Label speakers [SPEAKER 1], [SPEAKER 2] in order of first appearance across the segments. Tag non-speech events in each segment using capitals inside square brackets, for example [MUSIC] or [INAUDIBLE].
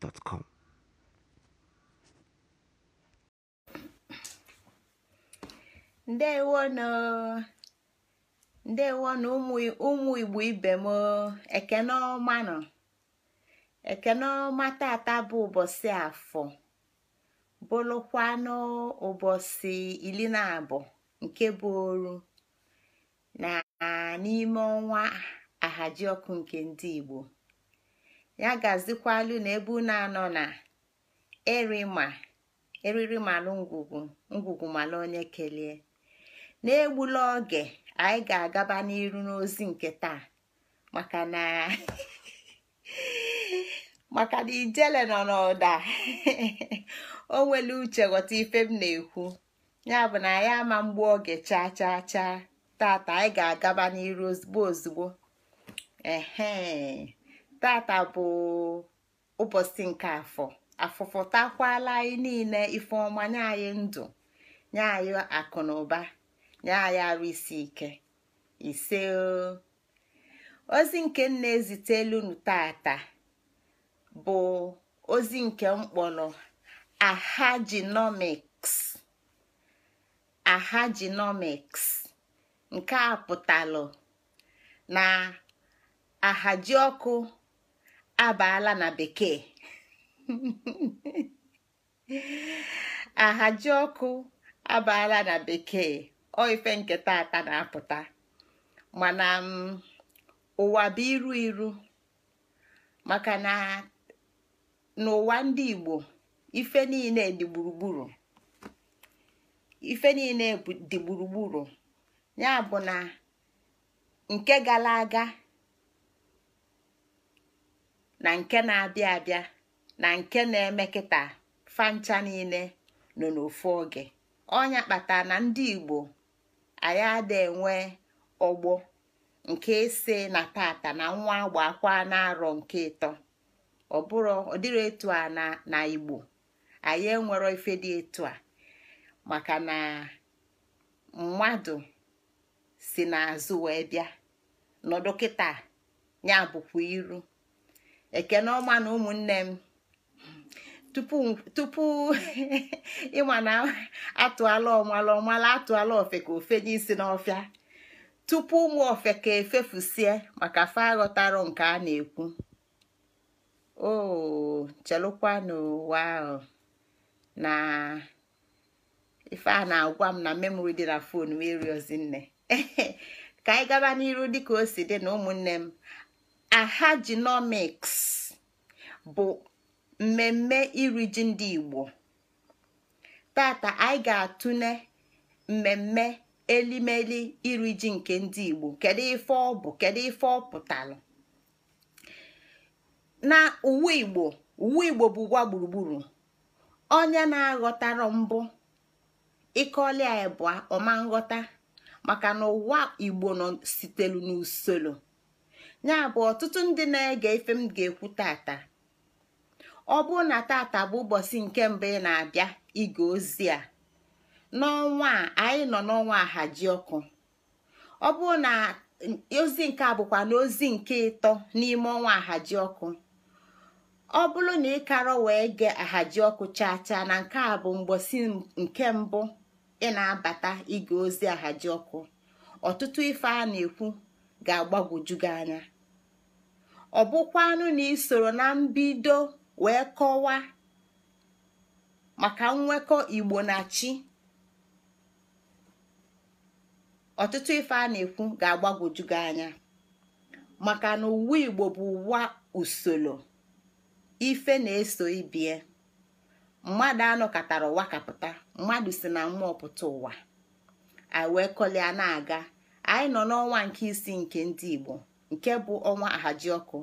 [SPEAKER 1] gmail.com.
[SPEAKER 2] na ndewonụ ụmụ igbo ibe m ekenọma ekenọma tata bụ ụbọchị afọ bụlụkwanụ ụbọchị iri na abụọ nke bụ oru na n'ime ọnwa ahajiọkụ nke ndị igbo ya gazikwalụ na ebe unu anọ na erima eriri malụ ngwugwu ngwugwu malụ onye kelee na-egbula oge anyị ga-agaba n'iru n'ozi nke taa maka na [LAUGHS] maka ijele nọ n'ụda [LAUGHS] o nwere uche ghọta ife m na-ekwu ya bụ na ya ama mgbu oge chaa chaa chaa tata anyị ga-agaba n'iru ozugbo ozugbo tata bụ ụbọchị nke afọ afụfụtakwala anyị niile ifeọma nye anyị ndụ nye anyị akụ na ụba nye anyị arụ isi ike ise ozi nke m na ezitelunu tata bụ ozi nke mkpọrọ ahajinomics ahajinomics nke a pụtalụ na ahaji ọkụ abaala na bekee ahaji ọkụ abaala na bekee ọ ife nke tata na-apụta mana ụwa bụ iru iru maka na n'ụwa ndị Igbo ife niile dị gburugburu ife niile dị gburugburu ya bụ na nke gara aga na nke na-abịa abịa na nke na-eme kịta fancha niile nọ n'ofu oge ọnya kpata na ndị igbo anyị ada enwe ọgbọ nke ise na tata na nwa akwa na-arọ nke ịtọ ọ bụrụ etu a na na igbo anyị enwero ife dị etu a maka na mmadụ si n'azụ wee bịa na kịta ya bụkwa iru ekene ọma na ụmụnne m tupu [LAUGHS] ịma na atụala ọmala ọmala atụala ofe ka ofe n'isi n'ọfịa tupu ụmụ ofe ka efefusie maka fa aghọtara nke a na-ekwu o chelụkwa n'ụwa ahụ na ife a na-agwa m na memori dị na fon eriozi nne [LAUGHS] ka anyị gaba n'iru dịka o si dị na ụmụnne m ahajinomiks bụ mmemme iri ji ndị Igbo tata anyị ga-atụle mmemme elimeli iri ji nke ndị Igbo kedu ife ọ bụ kedu ife ọ pụtara na uwe Igbo uwe Igbo bụ ụwa gburugburu onye na-aghọtara mbụ ịkọlia bụ ọma nghọta maka na ụwa Igbo nọ sitelu n'usoro ya bụ ọtụtụ ndị na-ege ife m ga-ekwu tata ọ bụrụ na tata bụ ụbọchị nke mbụ ị na-abịa ige ozi a n'ọnwa a anyị nọ n'ọnwa ahaji ọkụ ọ bụrụ na ozi nke a bụkwa na ozi nke ịtọ n'ime ọnwa ahaji ọkụ ọ bụrụ na ị karọ wee gee ahaji ọkụ chaa chaa na nke a bụ mgbosi nke mbụ ị na-abata ige ozi ahaji ọkụ ọtụtụ ife a na-ekwu ga-agbagwoju gị anya ọ bụkwanụ na isoro na mbido wee kọwaa maka nwekọ igbo na chi ọtụtụ ife a na-ekwu ga-agbagwoju gị anya maka na uwe igbo bụ ụwa usoro ife na-eso ibie mmadụ anọkọtara ụwa kapụta mmadụ si na mmụọ pụta ụwa a wee na-aga anyị nọ n'ọnwa nke isi nke ndị Igbo nke bụ ọnwa ahaji ọkụ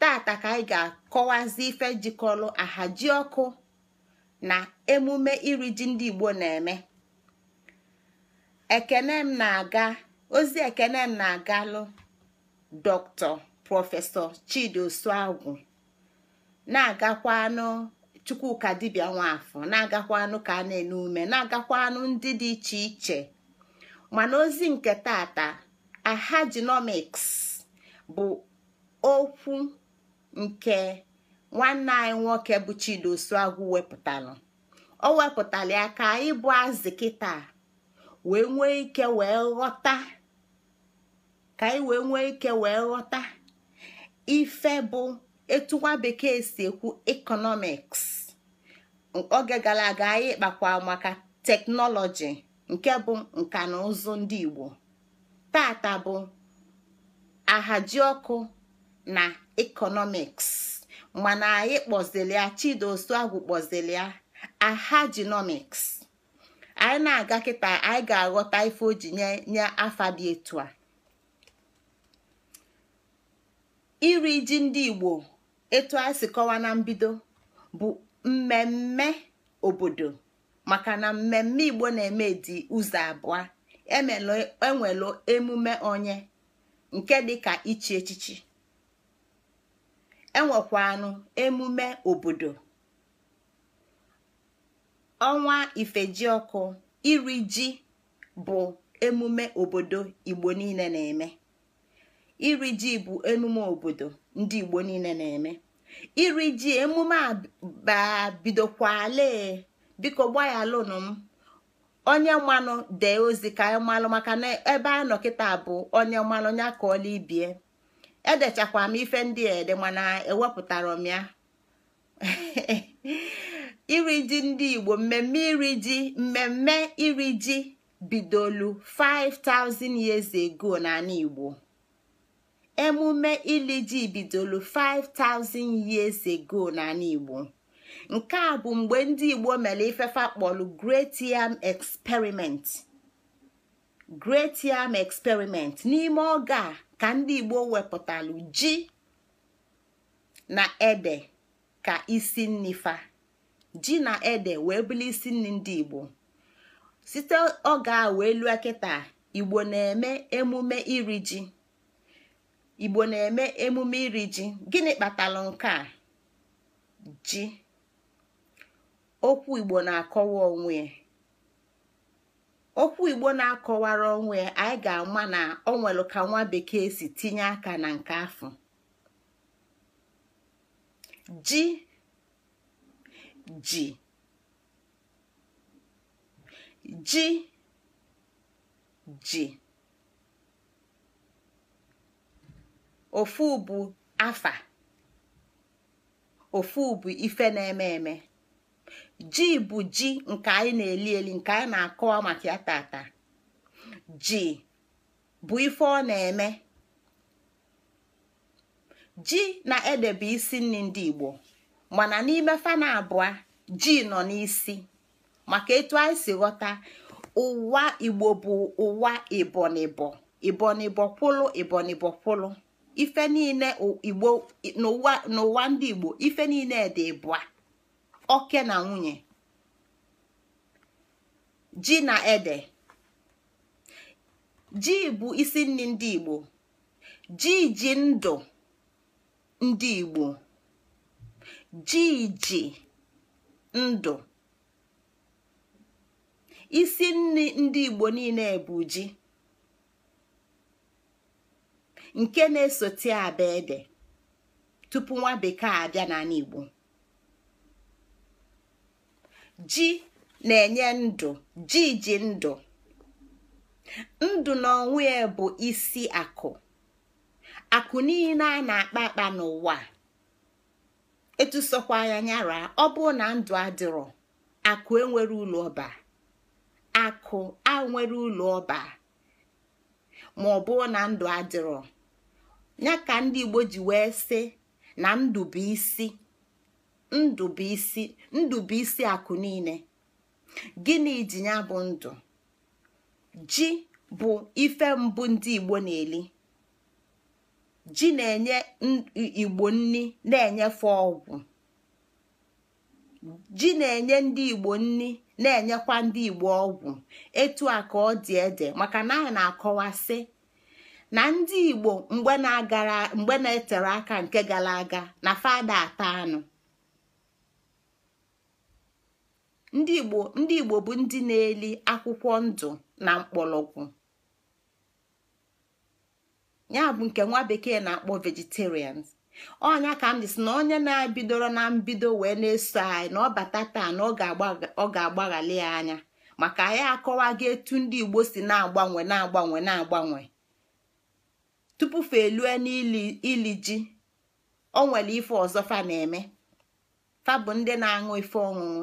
[SPEAKER 2] tata ka anyị ga-akọwazi ife jikọrọ ahaji ọkụ na emume iri ji ndị Igbo na-eme ekele m na-aga ozi ekene na-agalụ dọkịta prọfesọ chidiosuagwu na na-agakwanụ Chukwuka dibia nwafọ na-agakwanụ ka a na enume ume na-agakwanụ ndị dị iche iche mana ozi nke tata ahajinomiks bụ okwu nke nwanne anyị nwoke bụ Chidozuagwu wepụtalụ o wepụtara ya ka anyị bụ azị kịta wee nwee ike wee ghọta ka anyị wee nwee ike wee ghọta ife bụ etu nwa bekee si ekwu ekọnọmiks oge gara aga anyị kpakwa maka teknọlọji nke bụ nka na ụzụ ndị igbo tata bụ ọkụ na ekọnọmiks mana anyị kpọzili ya chidosu agwụ ya ahajinomiks anyị na-aga kịta anyị ga-aghọta ife o ji nye nye afa dị etu a iri ji ndị igbo etu a si kọwa na mbido bụ mmemme obodo maka na mmemme igbo na-eme dị ụzọ abụọ enwelu e emume onye nke dịka ichi echichi enwekwanụ emume obodo ọnwa ifejiọkụ iri ji bụ emume obodo igbo niile na-eme iri ji bụ emume obodo ndị igbo niile na-eme iri ji emume a bidokwale biko gba ya lonu m onye mmanụ dee ozi ka anyị malụ maka na ebe a nọ bụ onye mmanụ ya ka ọla ibie edechakwa m ife ndị ede mana ewepụtara m ya [LAUGHS] iri ji ndị igbo mmemme iri ji mmemme iri ji bidolu 5000 years ago n'ala igbo emume ili ji bidolu 5000 years ago n'ala igbo nke a bụ mgbe ndị igbo mere ifefa kpọlụ great yam experiment n'ime oge a ka ndị igbo wepụtalụ ji na ede ka isi nnifa ji na ede wee bụrụ isi nri ndị igbo site oge a wee lụọ kịta igbo na-eme emume iri ji igbo na-eme emume iri ji gịnị kpatara nke a ji okwu igbo na-akọwa onwe okwu akọwara onwe ya anyị ga-ama na ọ nwere ka nwa bekee si tinye aka na nke afọ ji ji ji ji ofu bụ afa ofu bụ ife na-eme eme ji bụ ji nke anyị na-eli eli nke anyị na-akọwa maka ya tata ji bụ ife ọ na-eme ji na ede isi nri ndị Igbo mana n'ime fana abụọ ji nọ n'isi maka etu anyị si ghọta ụwa Igbo bụ ụwa ibonibo ibonibo kwụlụ kwụlụ ife niile Igbo n'ụwa ndị Igbo ife niile dị bụa oke na nwunye ji na ede ji bụ isi nri ndị igbo ji ji ndụ ndị igbo ji ji ndụ isi nri ndị igbo niile bụ ji nke na-esote abịa ede tupu nwa bekee abịa n'ala igbo ji na-enye ndụ ji ji ndụ ndụ na ya bụ isi akụ akụ niile a na-akpa akpa n'ụwa etusokwa ya nyara ọ bụ na ndụ adịrọ akụ enwere ụlọ ọba akụ a nwere ụlọ ọba ma ọ bụ na ndụ adịrọ ya ka ndị Igbo ji wee sị na ndụ bụ isi ndụbụisi isi akụ niile gịnị ji ya bụ ndụ ji bụ ife mbụ ndị igbo na-eli ji na-enye igbo nni na-enyefe ọgwụ ji na-enye ndị igbo nni na-enyekwa ndị igbo ọgwụ etu a ka ọ dị ede maka na anyị na-akọwasị na ndị igbo mgbe na-etere aka nke gara aga na fada ata anụ ndị igbo bụ ndị na-eli akwụkwọ ndụ na mkpọlọgwụ ya bụ nke nwa bekee na-akpọ vegetarians ọnya ka m na onye na-ebidoro na mbido wee na-eso anyị na ọ bata taa na ọ ga-agbaghali ya anya maka anyị akọwago etu ndị igbo si na-agbanwe na-agbanwe na-agbanwe tupu fa elue ili ji o nwere ife ọzọ fa na-eme fa bụ ndị na-aṅụ ife ọṅụṅụ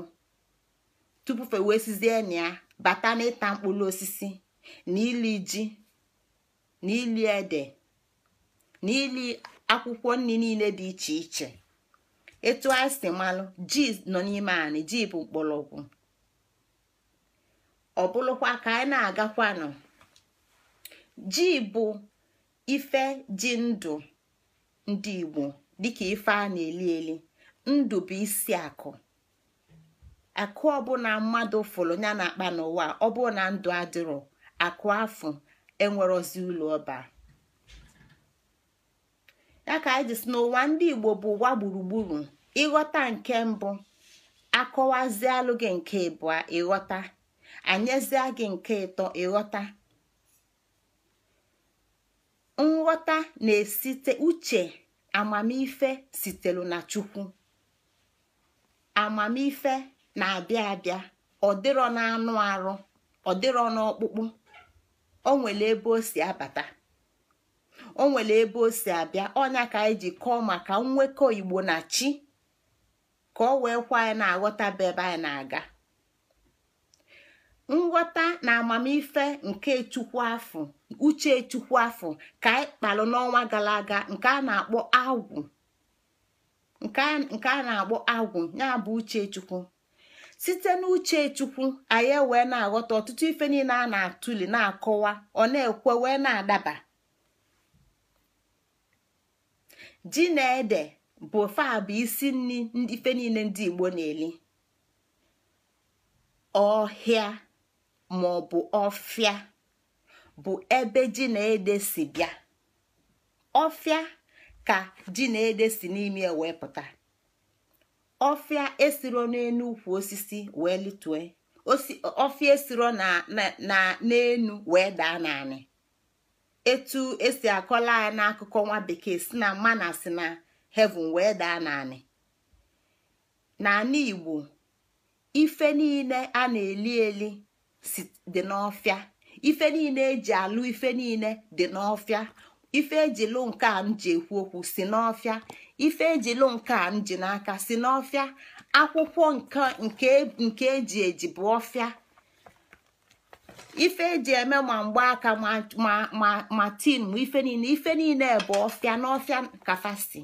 [SPEAKER 2] tupu wee sizie na bata n'ịta mkpụrụ osisi n'ili ji n'ili ede n'ili akwụkwọ nri niile dị iche iche etu anyị si malụ ji nọ n'ime anyị ji bụ mgbọrọgwụ ọ bụlụkwa ka anyị na-agakwanụ ji bụ ife ji ndụ ndị Igbo dịka ife a na-eli eli ndụ bụ isi akụ akụ ọbụla mmadụ fụrụ ya na akpa n'ụwa ọ na ndụ adịrọ akụ enwere enwerozi ụlọ ọba ya ka anyị n'ụwa ndị igbo bụ ụwa gburugburu ịghọta nke mbụ akọwazialụ gị nke ịbụa ịghọta anyezie gị nke ịtọ ịghọta nghọta na-esite uche amamife sitelu na chukwu amamife na-abịa abịa ọ dịrọ n'anụ arụ ọ dịrọ n'ọkpụkpụ o nwere ebe o si abata o nwere ebe o si abịa ọnya ka anyị ji kọọ maka nwekọ igbo na chi ka ọ wee kwa anyị na-aghọtaba ebe anyị na-aga nghọta na amamife nke chukwu afọ uche chukwu afọ ka anyị kpalụ n'ọnwa gara aga nke a na-akpọ agwụ nke a na-akpọ agwụ ya bụ uche chukwu site n'uche chukwu anyị wee na-aghọta ọtụtụ ife niile a na-atụli na-akọwa ọ na-ekwe wee na-adaba ji na ede bụ faa bụ isi nri ife niile ndị igbo na-eli ọhịa ma ọ bụ ọfịa bụ ebe ji na ede si bịa ọfịa ka ji na ede si n'ime wee pụta ọfịa esiro n'enu ukwu osisi wee litue ọfịa esiro na n'enu wee daa naanị etu esi akọla ya n'akụkọ nwa bekee si na mana si na heaven wee daa naanị naanị igbo ife niile a na-eli eli dị n'ọfịa ife niile eji alụ ife niile dị n'ọfịa ife eji nke a m ji ekwu okwu si n'ọfịa ife ejilu nke m ji n'aka si n'ọfịa akwụkwọ nke eji eji bụ ọfịa ife eji eme ma aka ma tin ma ife niile ife niile bụ ọfịa n'ọfịa kafasi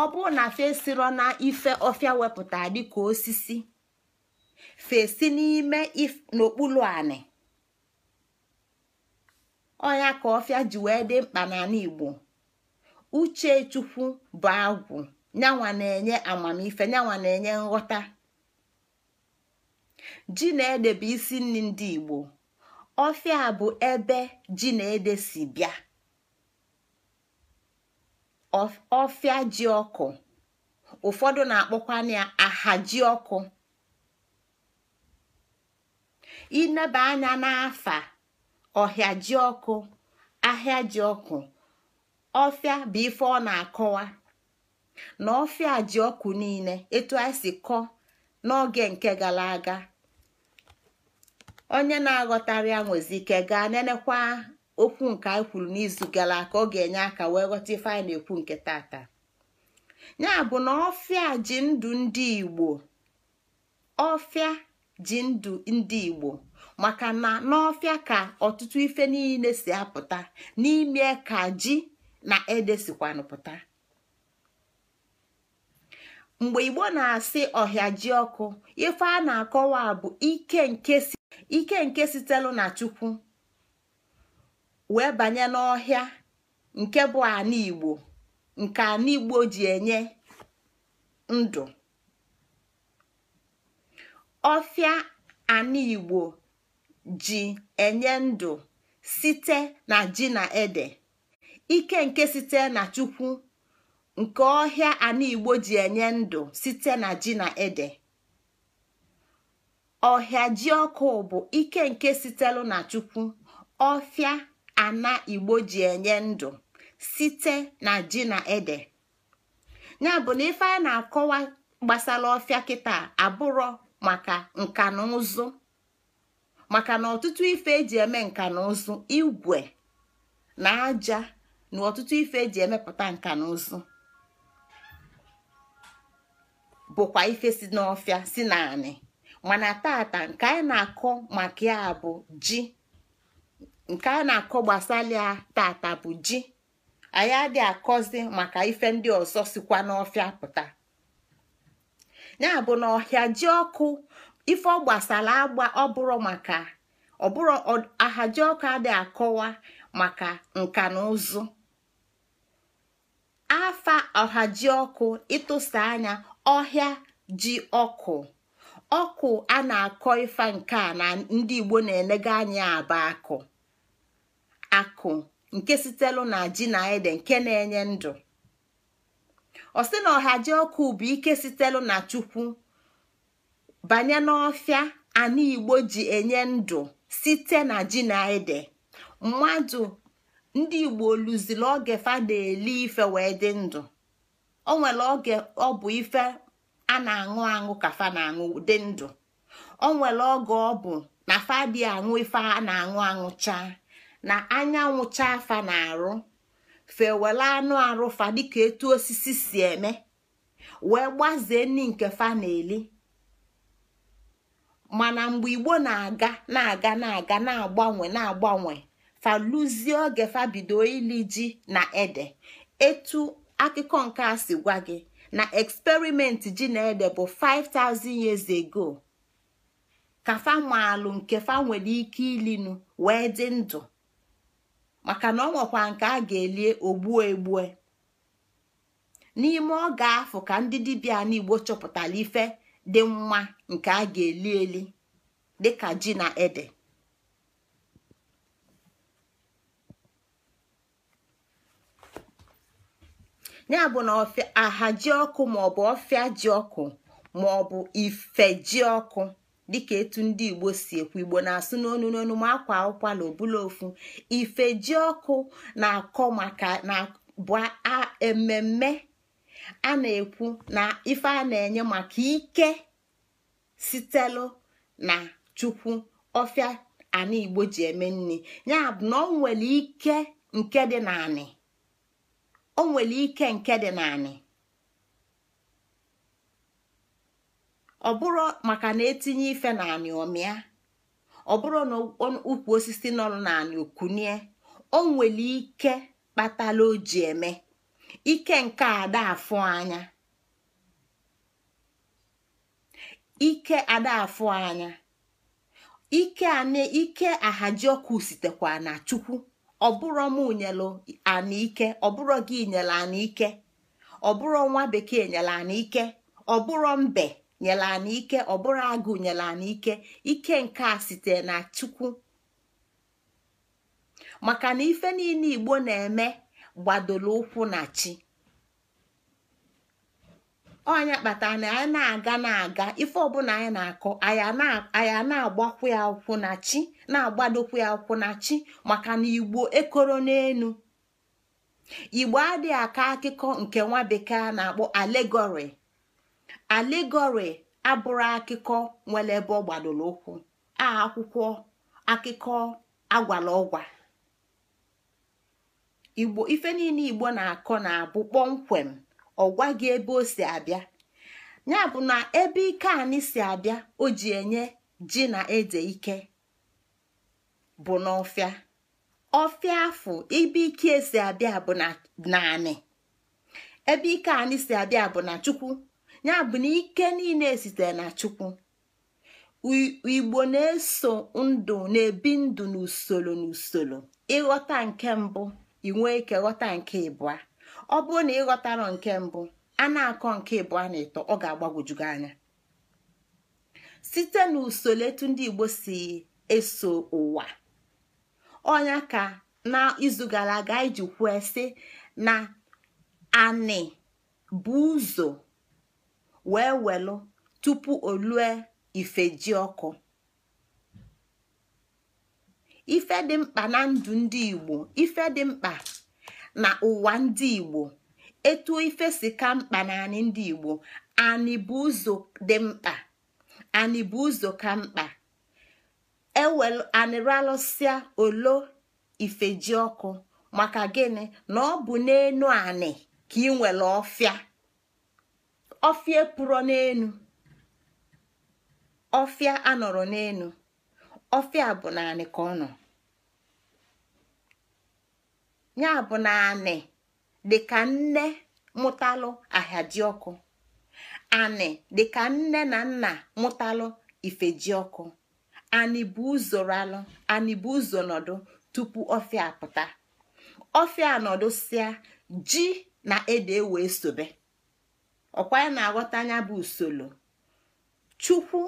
[SPEAKER 2] ọ bụrụ na fesiro na ife ọfịa wepụta dịka osisi fesi n'ime n'okpuru anị ọya ka ọfịa ji wee dị mkpa n'ala Igbo uchechukwu bụ agwụ nyanwa na-enye amamife nyanwa na-enye nghọta ji na ede bụ isi nri ndị igbo ọfịa bụ ebe ji na ede si bịa ọfịa ji ọkụ ụfọdụ na akpọkwa ya aha ji ọkụ ineba anya n'afa ọhịa ji ọkụ ahịa ji ọkụ ọfịa bụ ife ọ na-akọwa na ọfịa ji ọkụ niile etu anyị si kọọ n'oge nke gara aga onye na aghọtarị ya ike gaa nenekwa okwu nke anyị kwuru n'izu gara aka ọ ga-enye aka wee ghọta ife anyị na-ekwu nke tata ya bụ na ọfịa ji ndụ ndị Igbo ọfịa ji ndụ ndị Igbo maka na n'ọfịa ka ọtụtụ ife niile si apụta n'ime ka ji na edesikwanụ pụta mgbe igbo na-asị ọhịa ji ọkụ ife a na-akọwa bụ ike nke sitelu na chukwu wee banye n'ọhịa nke bụ ana igbo nke ana igbo ji enye ndụ ọfịa ana igbo ji enye ndụ site na ji na ede ike nke site na chukwu nke ọhịa ana igbo ji enye ndụ site na ji na ede ọhịa ji ọkụ bụ ike nke sitelu na chukwu ọfịa ana igbo ji enye ndụ site na ji na ede ya bụ na ife a na-akọwa gbasara ọfịa kịta abụrọ maka nka na ụzụ maka na ọtụtụ ife eji eme nka na ụzụ igwe na aja na ọtụtụ ife eji emepụta nka na ụzụ bụkwa ife si n'ọfịa si naanị mana tata nke anyị na-akọ maka ya bụ ji nke anyị na-akọ gbasara ya tata bụ ji anyị adịghị akọzi maka ife ndị ọzọ sikwa n'ọfịa pụta ya bụ na ọhịa ji ọkụ ife ọ gbasara agba ọbụrụ maka ọbụrụ ji ọkụ adịghị akọwa maka nka na ụzụ afa ọhajiọkụ ịtụsa anya ọhịa ji ọkụ ọkụ a na-akọ ifa nke a na ndị Igbo na-enega anya aba akụ akụ nke sitelu na ji na ede nke na-enye ndụ ọ sị na ọhaji ọkụ bụ ike sitelu na chukwu banye n'ọfịa ana igbo ji enye ndụ site na ji na ede mmadụ ndị igbo oluzili oge fa na-eli ife wee dị ndụ o nwere oge ọ bụ ife a na-aṅụ aṅụ ka fa na-aṅụ dị ndụ o nwere oge ọ bụ na fa dị aṅụ ife a na-aṅụ aṅụ chaa na anyanwụ chaa fa na-arụ fewela anụ arụ fa dịka etu osisi si eme wee gbazee ni nke fa na-eli mana mgbe igbo na-aga na-aga na-aga na-agbanwe na-agbanwe faluzie oge bido ili ji na ede etu akụkọ nke a si gwa gị na eksperimenti ji na ede bụ 5000 years ago ka famaalụ nke fa nwere ike ilinu wee dị ndụ maka na ọ nwekwa nke a ga-elie ogbuo egbue n'ime oge afọ ka ndị dibịa n'igbo chọpụtara ife dị mma nke a ga-eli eli dịka ji na ede ya bụ na aha ji ọkụ maọbụ ọfịa ji ọkụ maọbụ ife ji ọkụ dịka etu ndị igbo si ekwu igbo na-asụ n'onu n'onu ma akwa na obula ofu ife ji ọkụ na-akọ maka na bụ ememme a na-ekwu na ife a na-enye maka ike sitelu na chukwu ọfịa anigbo ji eme nri ya bụ na ọ nwere ike nke dị naanị o nwere ike nke dị naanị ọ bụrụ maka na etinye ife naanị ọmịa ọ bụrụ na ukwu osisi nọ naanị okunie o nwere ike kpatala o ji eme ike nke ada afọ anya ike ada anya ike na chukwu ọbụrụ m nyelu anike ọbụrụ gị nyere anike ọbụrụ nwa bekee nyere anike ọbụrụ mbe nyere anike ọbụrụ agụ nyere anike ike nke a site na chukwu maka na ife niile igbo na-eme gbadolo ụkwụ na chi ọnya kpatara na anyị na-aga na-aga ife ọbụla anyị na-akọ anya na-agbakwu ya akwụkwụ na chi na-agbadokwu ya na chi maka na igbo ekoro n'elu igbo adịghị aka akụkọ nke nwa bekee na-akpọ alegori alegori abụrụ akụkọ nwere ebe ọ gbadoro ụkwụ a akwụkwọ akụkọ agwala ọgwa igbo ife niile igbo na-akọ na-abụ kpọmkwem ọ gị ebe o si abịa ya bụ na ebe ike anyị si abịa o ji enye ji na ede ike bụ n'ọfịa ọfịa afọ ibe ike e si abịa bụ na anị ebe ike anyị si abịa bụ na chukwu ya bụ na ike niile sitere na chukwu igbo na-eso ndụ na-ebi ndụ n'usoro n'usoro ịghọta nke mbụ inwe ike ghọta nke ịbụa ọ bụrụ na ịghọtara nke mbụ a na-akọ nke ịbụ a na-eto ọ ga-agbagwojugo anya site n'usoro etu ndị Igbo si eso ụwa ọnya ka n'izu gara aga iji kwue sị na anị bụ ụzọ wee welụ tupu olue ife ji ọkụ ife dị mkpa na ndụ ndị Igbo ife dị mkpa na ụwa ndị igbo etu ife si ka mkpa na anị ndị igbo anị bụ ụzọ dị mkpa anị bụ ụzọ ka mkpa e anịralụsịa olo ifeji ọkụ maka gịnị na ọ bụ n'enu anị ka ị nwere ọfịa ọfịa pụrụ n'enu ọfịa anọrọ n'enu ọfịa bụ naanị ka ọ nọ ya bụ na anị dịka nne mụtalụ ọkụ anị dịka nne na nna mụtalụ ọkụ anị bụ uzoralụ anị bụ ụzọ nọdụ tupu ọfịa apụta ọfịa nọdụ sịa ji na ede e wee sobe ọkwa ya na-aghọta anya bụ usoro chukwu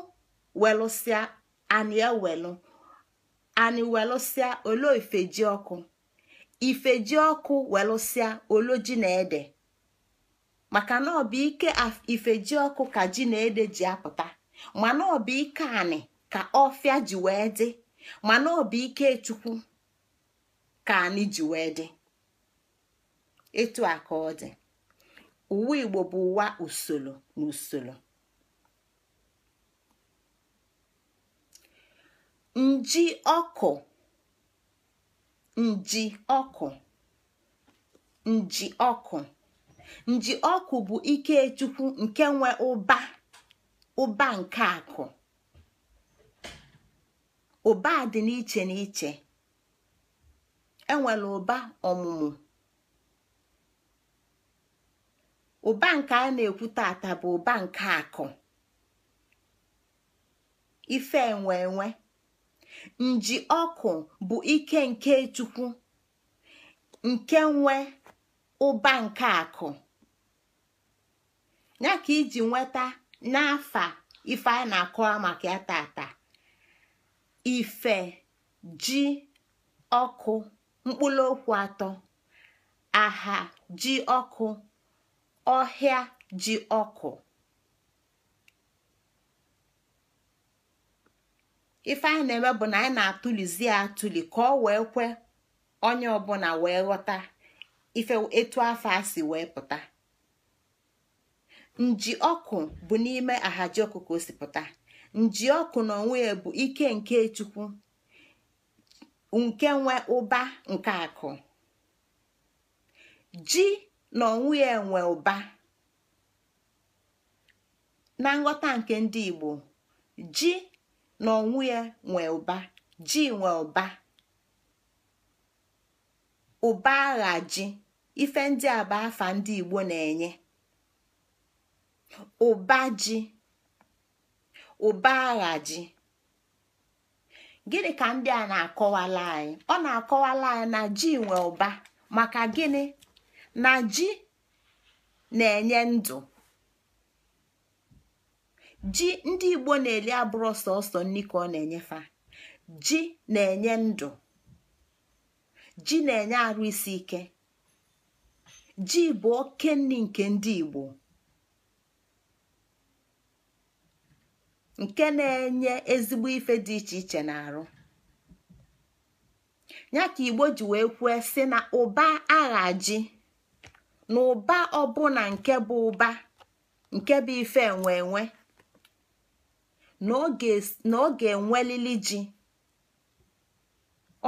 [SPEAKER 2] welụsịa anị welụ anị welụsịa ole ifeji ọkụ ifeji ọkụ welụsịa oloji na ede maka na ọ ike ifeji ọkụ ka ji na ede ji apụta mana ọ bụ ike anị ka ọfịa ji wee dị mana ọ bụ ike chukwu ka anyị ji wee dị etu a ka ọ dị uwe igbo bụ ụwa usoro na usoro nji ọkụ nji ọkụ nji ọkụ nji ọkụ bụ ikechukwu nke nwe ụba ụba nke akụ ụba dị n'iche n'iche enwere ụba ọmụmụ ụba nke a na-ekwu tata bụ ụba nke akụ ife enwe enwe nji ọkụ bụ ike nke chukwu nke nwe ụba nke akụ ya ka iji nweta n'afa ife a na-akọwa maka ya tata ife ji ọkụ mkpụrụ okwu atọ aha ji ọkụ ọhịa ji ọkụ ife anyị na-eme bụ na anyị na-atụlizi ya atụli ka ọ wee kwe onye ọbụla wee ghọta ife etu afọ a si wee pụta nji ọkụ bụ n'ime ahaji ọkụ ka o si pụta nji ọkụ na onwe bụ ike nke chukwu nke nwe ụba nke akụ ji na onwe ya nwe ụba na nghọta nke ndị Igbo ji na onwe ya nwe ụba ji nwe ụba ụba agha ji ife ndị a bụ afa ndị Igbo na-enye ụba ji ụba agha ji gịnị ka ndị a na-akọwala anyị ọ na-akọwala anyị na ji nwe ụba maka gịnị na ji na-enye ndụ ji ndị igbo na-eli abụrụ sọsọ nri ka ọ na-enyefa ji na-enye ndụ ji na-enye arụ isi ike ji bụ oke nri nke ndị igbo nke na-enye ezigbo ife dị iche iche na-arụ ya ka igbo ji wee kwue sị na ụba agha ji na ụba ọbụna nke bụ ụba nke bụ ife enwe enwe na ọ ga-enwelili ji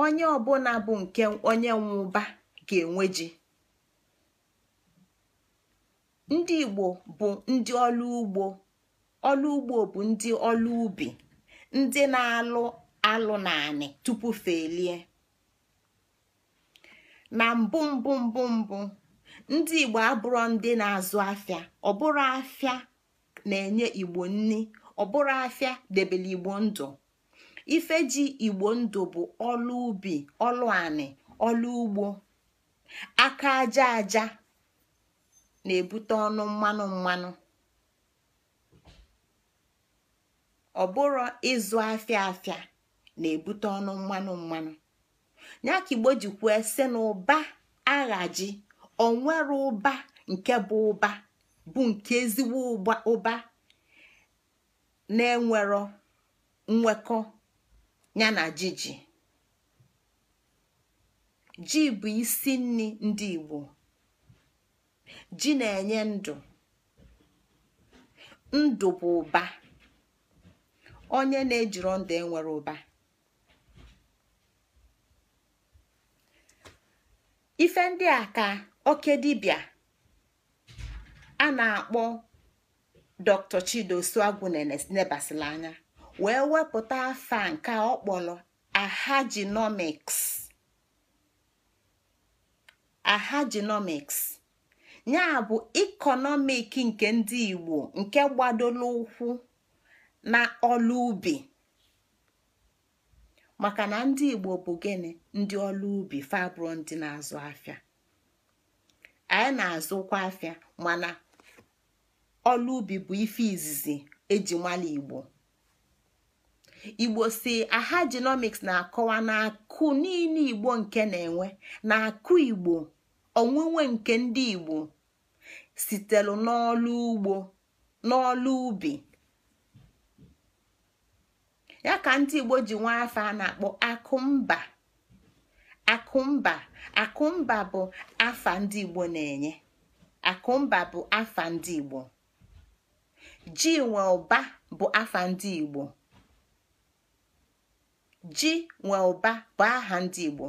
[SPEAKER 2] onye ọbụla bụ nke onye nwụba ga-enwe ji ndị igbo bụ ndị ọlụ ugbo ọlụ ugbo bụ ndị ọlụ ubi ndị na-alụ alụ naanị tupu felie na mbụ mbụ mbụ mbụ ndị igbo abụrụ ndị na-azụ afịa ọbụrụ bụrụ afịa na-enye igbo nni ọ bụrụ afịa debere igbo ndụ ife ji igbo ndụ bụ ọlụ ubi ọlụ anị ọlụ ugbo aka aja aja na-ebute ọnụ mmanụ mmanụ ọ bụrụ ịzụ afịa afịa na-ebute ọnụ mmanụ mmanụ ya ka igbo ji si na ụba aghaji onwere ụba nke bụ ụba bụ nke ezigbo ụba na-enwero nwekọ ya na jiji ji bụ isi nri ndị Igbo ji na-enye ndụ ndụ bụ ụba onye na-ejiro ndụ enwere ụba ife ndị a ka oke dibịa a na-akpọ dr chido na nebasila anya wee wepụta afa nke ọ kpọrọ ahajinomiks ahajinomiks ya bụ ikonomik nke ndị igbo nke gbadoro ụkwụ na ọlụ ubi maka na ndị igbo bụ gịnị ndị ọlụ ubi fabro ndị na-azụ afịa anyị na-azụkwa afịa mana ọlụ ubi bụ ife izizi eji igbo igbo si aha genomics na-akọwa na akụ niile igbo nke na-enwe na akụ igbo onwunwe nke ndị igbo sitelu n'ọlụ ugbo n'ọlụ ubi ya ka ndị igbo ji nwa afọ a na-akpọ akụmba akụmba akụmba bụ afa ndị igbo na-enye akụmba bụ afa ndị igbo ji nwe ụba bụ afa ndị igbo ji nwe ụba bụ aha ndị igbo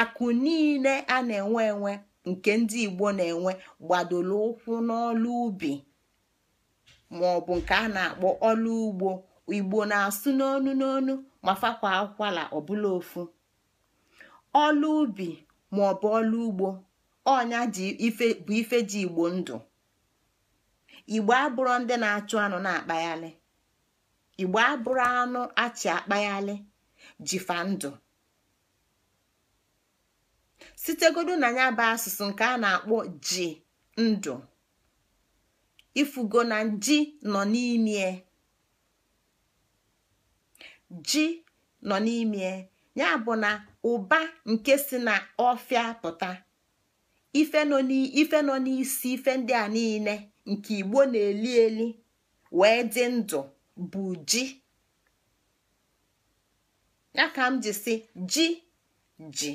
[SPEAKER 2] akụ niile a na-enwe enwe nke ndị igbo na-enwe gbadoro ụkwụ n'ọlụ ubi ma ọ bụ nke a na-akpọ ọlụ ugbo igbo na-asụ n'onu n'onu ma fakwa akwala ọbụla ofu ọlụ ubi ma ọ bụ ọlụ ugbo ọnya bụ ife ji igbo ndụ igbo abụrụ ndị na-achụ anụ na-akpaghalị igbo abụrụ anụ achị akpaghalị jifa ndụ sitegodu na ya bụ asụsụ nke a na-akpọ ji ndụ ifugo na ji nọ n'ime ji nọ n'ime ya bụ na ụba nke si na ọfịa pụta ife nọ n'isi ife ndị a niile nke igbo na-eli eli wee dị ndụ bụ ji ya ka m ji si ji ji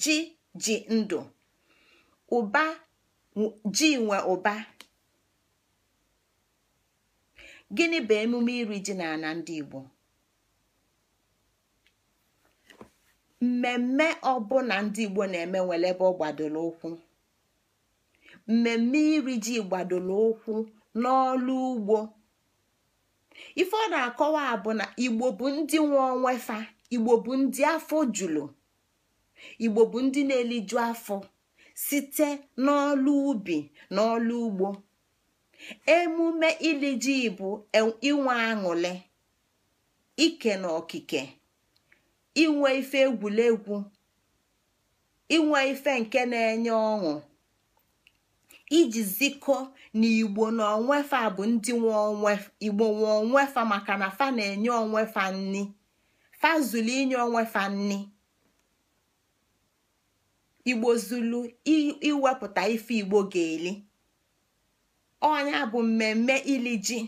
[SPEAKER 2] ji ji ndụ ụba ji nwe ụba gịnị bụ emume iri ji na ana ndị igbo mmemme ọbụla ndị igbo na-eme nwere ebe ọ gbadoro ụkwụ mmemme iri ji gbadoro ụkwụ n'ọlụ ugbo ife ọ na-akọwa bụ na igbo bụ ndị nwe onwe fa igbo bụ ndị afọ julu igbo bụ ndị na-eliju afọ site n'ọlụ ubi n'ọlụ ọlụ ugbo emume ili ji bụ inwe aṅụle ike na okike inwe ife egwuregwu inwe ife nke na-enye ọṅụ iji ziko na igbo na onwefa bụ ndị igbo nwe onwefa maka na fa na-enye onwefa nni fa zulu inye onwefa nni igbo zulu iwepụta ife igbo ga-eli ọnya bụ mmemme iliji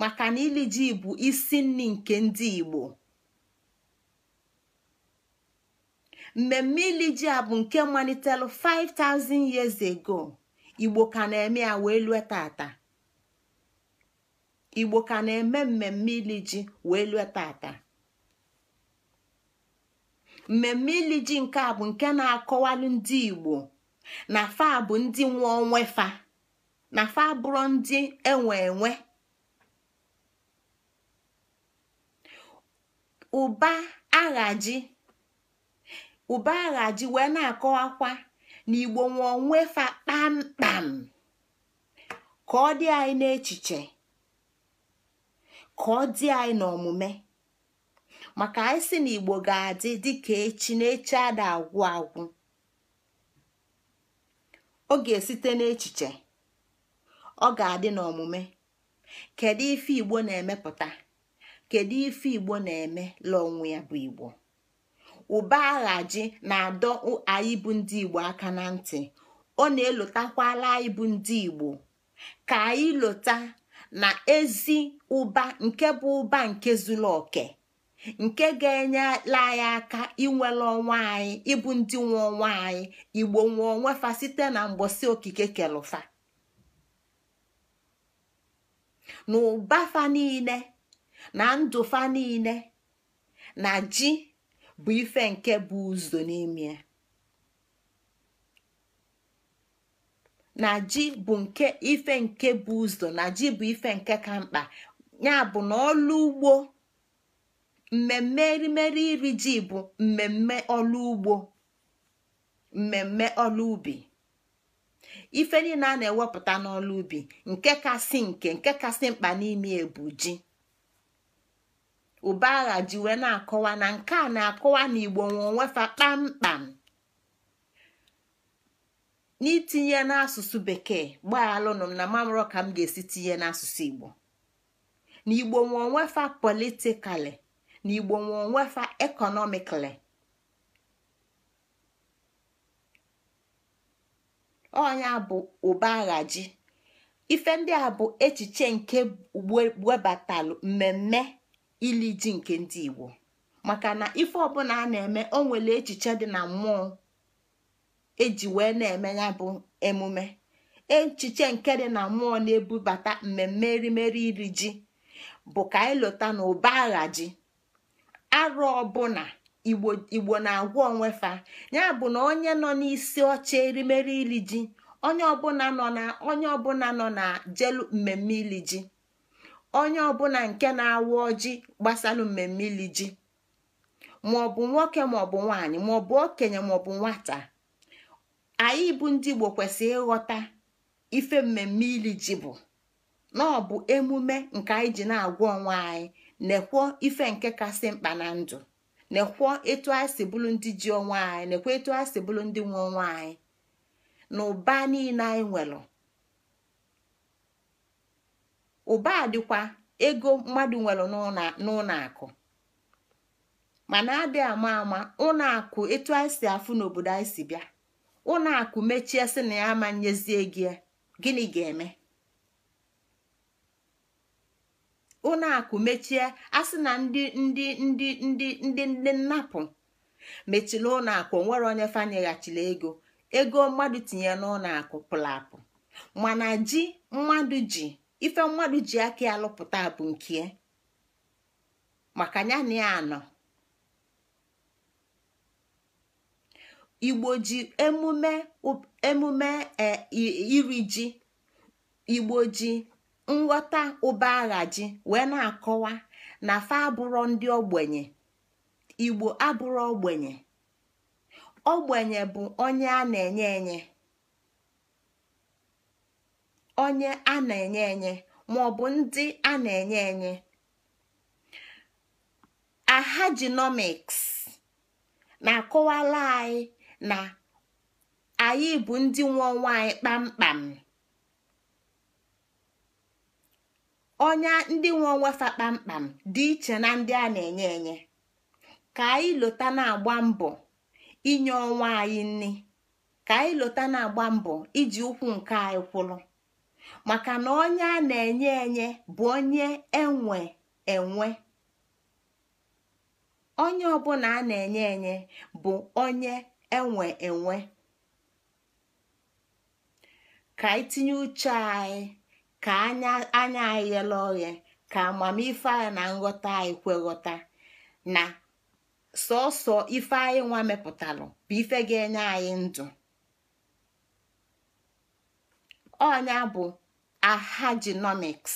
[SPEAKER 2] maka na iliji bụ isi nni nke ndị igbo mmemme iliji a bụ nke malitelu 5000 years ago igbo ka na-eme ya wee lue tata igbo ka na-eme mmemme ili ji wee lue tata mmemme ili ji nke a bụ nke na-akọwalụ ndị igbo na fa bụ ndị nwe onwe fa na fa bụrụ ndị enwe enwe ụba aghaji ụba aghaji wee na-akọwakwa n'igbo igbo nwe onwe fa kpamkpam ka ọ dị anyị n'echiche ka ọ dị anyị n'omume maka anyị si na igbo ga-adị dịka echi na echi ada agwụ agwụ ọ ga-esite n'echiche ọ ga-adị n'omume kedu ife igbo na-emepụta kedu ife igbo na-eme lụọ onwe ya bụ igbo ụba aghaji na-adọ anyị bụ ndị igbo aka na ntị ọ na-elotakwala anyị bụ ndị igbo ka anyị lota na ezi ụba nke bụ ụba nke zuru oke nke ga-enyela anyị aka inwere ọnwa anyị ịbụ ndị nwe ọnwa anyị igbo nwe onwe fa site na mgbosi okike kelufa na ụba fa niile na ndụ fa niile na ji bụ ife nke bụ ụzọ n'ime na ji bụ nke ife nke bụ ụzọ na ji bụ ife nke ka mkpa ya bụ na ọlụ ugbo mmemme erimeri iri ji bụ mmemme ọlụ ugbo mmemme ọlụ ubi ife niile a na-ewepụta n'ọlụ ubi nke kasị nke nke kasị mkpa n'ime ebu ji ụbagha ji na-akọwa na nke a na-akọwa na igbo nwe onwefa kpamkpam n'itinye n'asụsụ bekee gbaa m na mamụrụ ka m ga-esi tinye n'asụsụ igbo na igbo nwe politikali na igbo nwe onwefa ekọnọmikali ọnya bụ ụbagha ji ife ndị a bụ echiche nke webatalụ mmemme ili ji nke ndị igbo maka na ife ọbụla a na-eme o nwere echiche dị na mmụọ eji wee na-eme ya bụ emume echiche nke dị na mmụọ na-ebubata mmemme erimeri iri ji bụ ka anyị na ụba agha ji arụ ọbụla igbo na-agwa onwefa ya bụ na onye nọ n'isi ọcha erimeri iri ji onye ọbụla nọ na onye ọbụla nọ na jelu mmemme ili ji onye ọbụla nke na-awụ ọjị gbasalụ mmemme ili ji maọbụ nwoke maọbụ nwanyị maọbụ okenye maọbụ nwata anyị bụ ndị Igbo kwesịrị ịghọta ife mmemme ili ji bụ na ọ bụ emume nke anyị ji na-agwa onwe anyị naekwo ife nke kasị mkpa na ndụ naekwo etu anyị si bụrụ ndị ji onwe anyị nekwuo etu anyị si bụrụ ndị nwe onwe anyị na ụba niile anyị nwere ụba dịkwa ego mmadụ nwere n'ụlọ akụ mana adị ama ama ụlọ akụ etu anyị si afụ n'obodo anyị si bịa ụlọ akụ mechie sị na ya ama nyezie gị gịnị ga-eme ụlọ akụ mechie asị na ndị ndị ndị ndị ndị ndị nnapụ mechiri ụlọakụ akụ onwere onye fanyeghachila ego ego mmadụ tinye n'ụlọakụ akụ pụrụ apụ mana ji mmadụ ji ife mmadụ ji aka ya bụ nke maka ya na ya nọ igbo ji emume emume e, iri ji igbo ji nghọta ụba agha ji wee na-akọwa na fa abụrọ ndị ogbenye igbo abụrọ ogbenye ogbenye bụ onye a na-enye enye onye a na-enye enye ma ọ bụ ndị a na-enye enye Aha ahajinomics na-akọwala anyị na anyị bụ ndị nwe onwe anyị kpamkpam onye ndị nwe onwe fa kpamkpam dị iche na ndị a na-enye enye ka anyị lota na-agba mbọ inye onwe anyị nri ka anyị lota na-agba mbọ iji ụkwụ nke anyị kwụrụ maka na onye a na-enye enye bụ onye enwe enwe onye ọbụla a na-enye enye bụ onye enwe enwe ka itinye uche anyị ka anya anya anyị ghele oghe ka amamife anyị na nghọta anyị kweghọta na sọsọ ife anyị nwa mepụtarụ bụ ife ga-enye anyị ndụ Onya bụ ahajinomics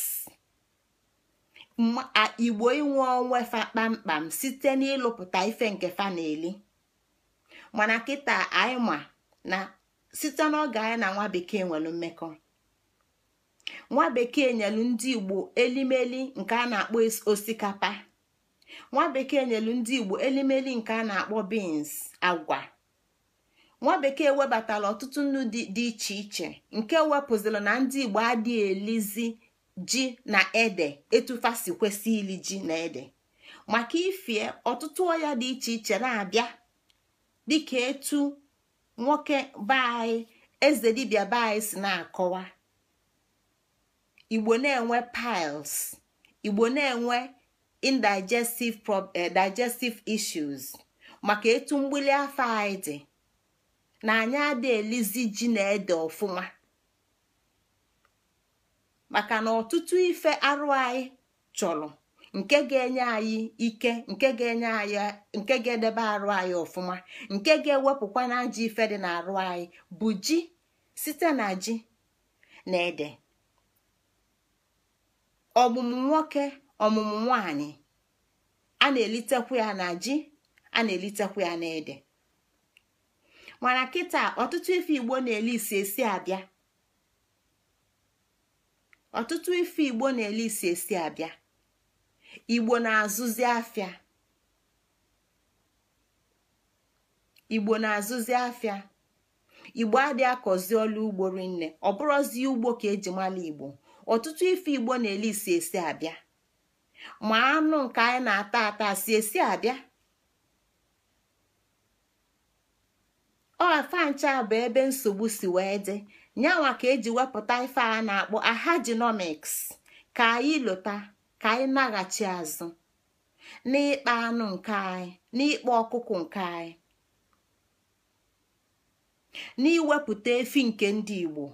[SPEAKER 2] igbo inwe onwe fa kpamkpam site n'ịlụpụta ife nke fa na-eli mana kịta anyị ma na site n'oge anyị na nwa bekee nwere mmekọ nwa bekee nyelu ndị igbo elimeli nke a na-akpọ osikapa nwa bekee nyelu ndị igbo elimeli nke a na-akpọ beans agwa nwa bekee webatala ọtụtụ nnu dị iche iche nke wepụzila na ndị igbo adịghị elizi ji na ede etufasi kwesị ili ji na ede maka ifie ọtụtụ ọya dị iche iche na-abịa dịka etu nwoke be eze dibia be si na-akọwa igbo na-enwe piles igbo na-enwe indigestive eh, digestive issues maka etu mgbili afọ anyị dị na anyị ada elizi ji na ede ọfụma maka na ọtụtụ ife arụ anyị chọrọ nke ga-enye anyị ike nke ga-enye anyị nke ga-edebe arụ anyị ọfụma nke ga-ewepụkwa na ji ife dị n'arụ anyị bụ ji site na ji na ede ọmụmụ nwoke ọmụmụ nwanyị a na elitekwu ya na ji a na elitekwu ya na ede mana kịta ọtụtụ ife igbo na-ele isi esi abịa ọtụtụ igbo na-ele azụzi afịa igbo na-azụzi akọzi ọlụ ugbo rinne ọ bụrụzi ugbo ka eji mala igbo ọtụtụ ife igbo na-ele isi esi abịa ma anụ nke anyị na-ata ata si esi abịa ọfa ncha bụ ebe nsogbu si wee dị nyanwa ka eji wepụta ife a na-akpọ ahajinomiks ka anyị lụta ka anyị naghachi azụ n'ịkpa anụ nke anyị n'ịkpa ọkụkọ nke anyị n'iwepụta efi nke ndị Igbo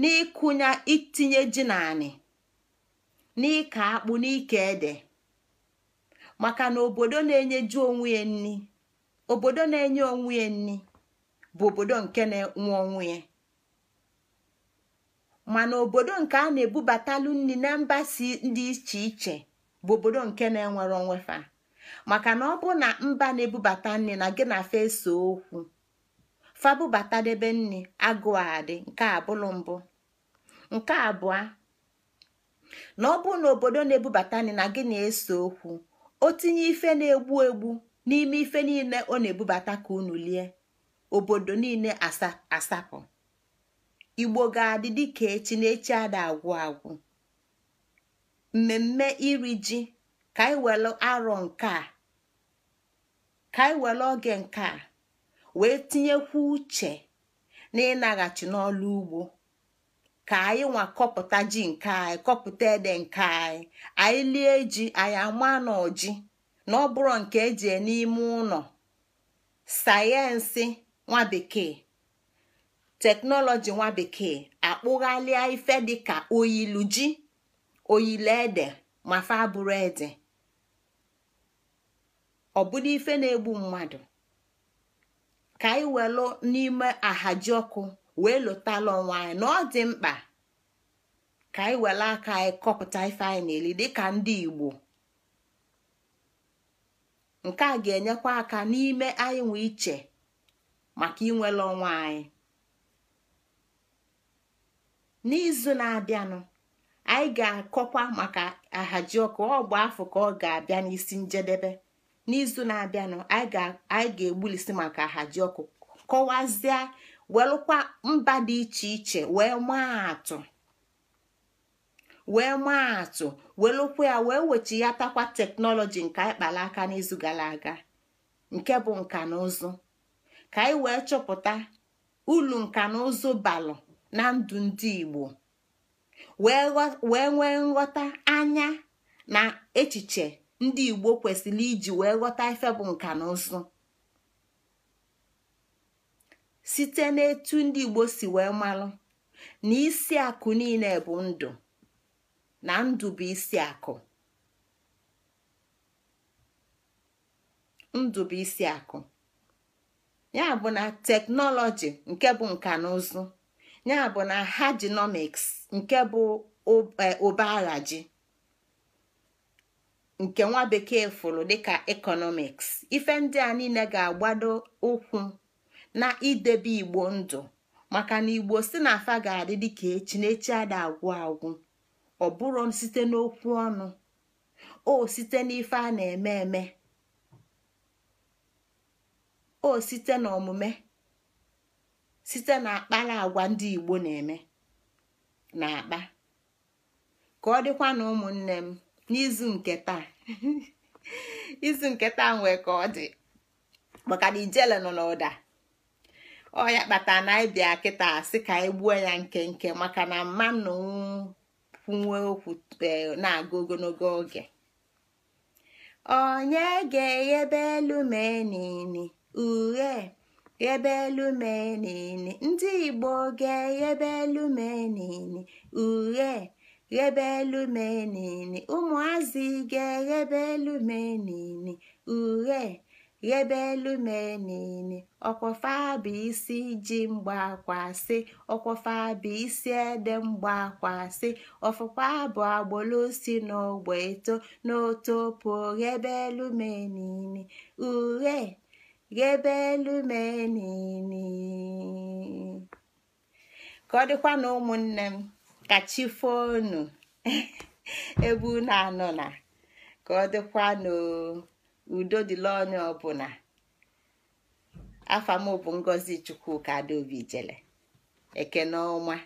[SPEAKER 2] n'ịkụnya itinye ji naanị n'ịka akpụ n'ike ede maka na obodo na-enyeju onwe ya nri obodo na-enye onwe ya nri bụ obodo nke na-enwe onwe ya mana obodo nke a na-ebubatalu nri na mba si dị iche iche bụ obodo nke na-enwere onwe fa maka na ọ bụ na mba na-ebubata nri na gị na fesa okwu fabụbatadebe nri agụ adị nke abụlụ mbụ nke abụọ na ọ bụ na obodo na-ebubata nri na gị na-ese okwu o tinye ife na-egbu egbu n'ime ife niile ọ na-ebubata ka unu lie obodo niile asapụ igbo ga-adị ka echi na echi ada agwụ agwụ mmemme iri ji ka anyị were arọ nke a ka anyị were oge nke a wee tinyekwu uche na ịnaghachi n'ọlụ ugbo ka anyị nwa kọpụta ji nke anyị kọpụta ede nke anyị anyị lie ji anyị ama n'oji ọji na ọ bụrụ nke eji e n'ime ụlọ sayensị nwa bekee teknọlọji nwa bekee akpụghalịa ife dịka oyilu ji oyilu ede ma fa bụrụ ede ọ ife na-egbu mmadụ ka anyị welụ n'ime ahaji ọkụ wee lụtala onwe anyị na ọ dị mkpa ka anyị were aka anyị kọpụta ife anyị na dịka ndị Igbo nke a ga-enyekwa aka n'ime anyị nwe iche maka inwele ọnwa anyị n'izu na-abịanụ anyị ga-akọkwa maka ahajiọkụ ọ bụ afọ ka ọ ga-abịa n'isi njedebe n'izu na-abịanụ anyị ga-egbulisi maka ahajiọkụ kọwazie welụkwa mba dị iche iche wee maa atụ wee maa atụ welụkwa ya wee takwa teknọlọji nke anyị kpara aka n'izu gara aga nke bụ nka na ụzụ ka anyị wee chọpụta ulu nka na ụzụ balụ na ndụ ndị igbo wee nwee nghọta anya na echiche ndị igbo kwesịrị iji wee ghọta ife bụ nka na ụzụ site n'etu ndị igbo si wee malụ na isi akụ niile bụ ndụ na ndụ bụ isi akụ ndụ bụ isi akụ ya bụ na teknọlọji nke bụ nka na ụzụ ya bụ na hajinomiks nke bụ e, ụba nke nwa bekee fụrụ dịka ekọnọmiks ife ndị a niile ga-agbado ụkwụ na idebe igbo ndụ maka na igbo si na afa ga-adị dịka echi na echi ada agwụ agwụ ọ bụrụ site n'okwu ọnụ o site n'ife a na-eme eme o site n'omume site na agwa ndị Igbo na-eme na akpa ka ọ dịkwa na ụmụnne m n'izu nke taa [LAUGHS] izu nke taa nwee ka ọ dị maka na ijele nọ n'ụda ọ ya kpatara na ebi bịa kịta asị ka anyị gbuo ya nke nke maka na mmanụ kwunwe okwu eh, na-aga ogologo oge onye ga-eghebe elu menini ughe ghebe elu ndị igbo ga-eghebe elu menini ughe ghebe elu ụmụazị ga-eghebe elu menini ughe elu bụ isi ji bụ isi ede mgbaakwasị ọfụfabụ agbolosi n'ogbe eto n'otopo ghebelụmenini uhe ghebelụmenini ka ọ dịkwa na ụmụnne m ka chi foonu ebe unu [LAUGHS] anọ na ka ọ dịkwa n'o udo dịla onye ọbụla bụ ngozi chukwuka adaobi jele ekene ọma.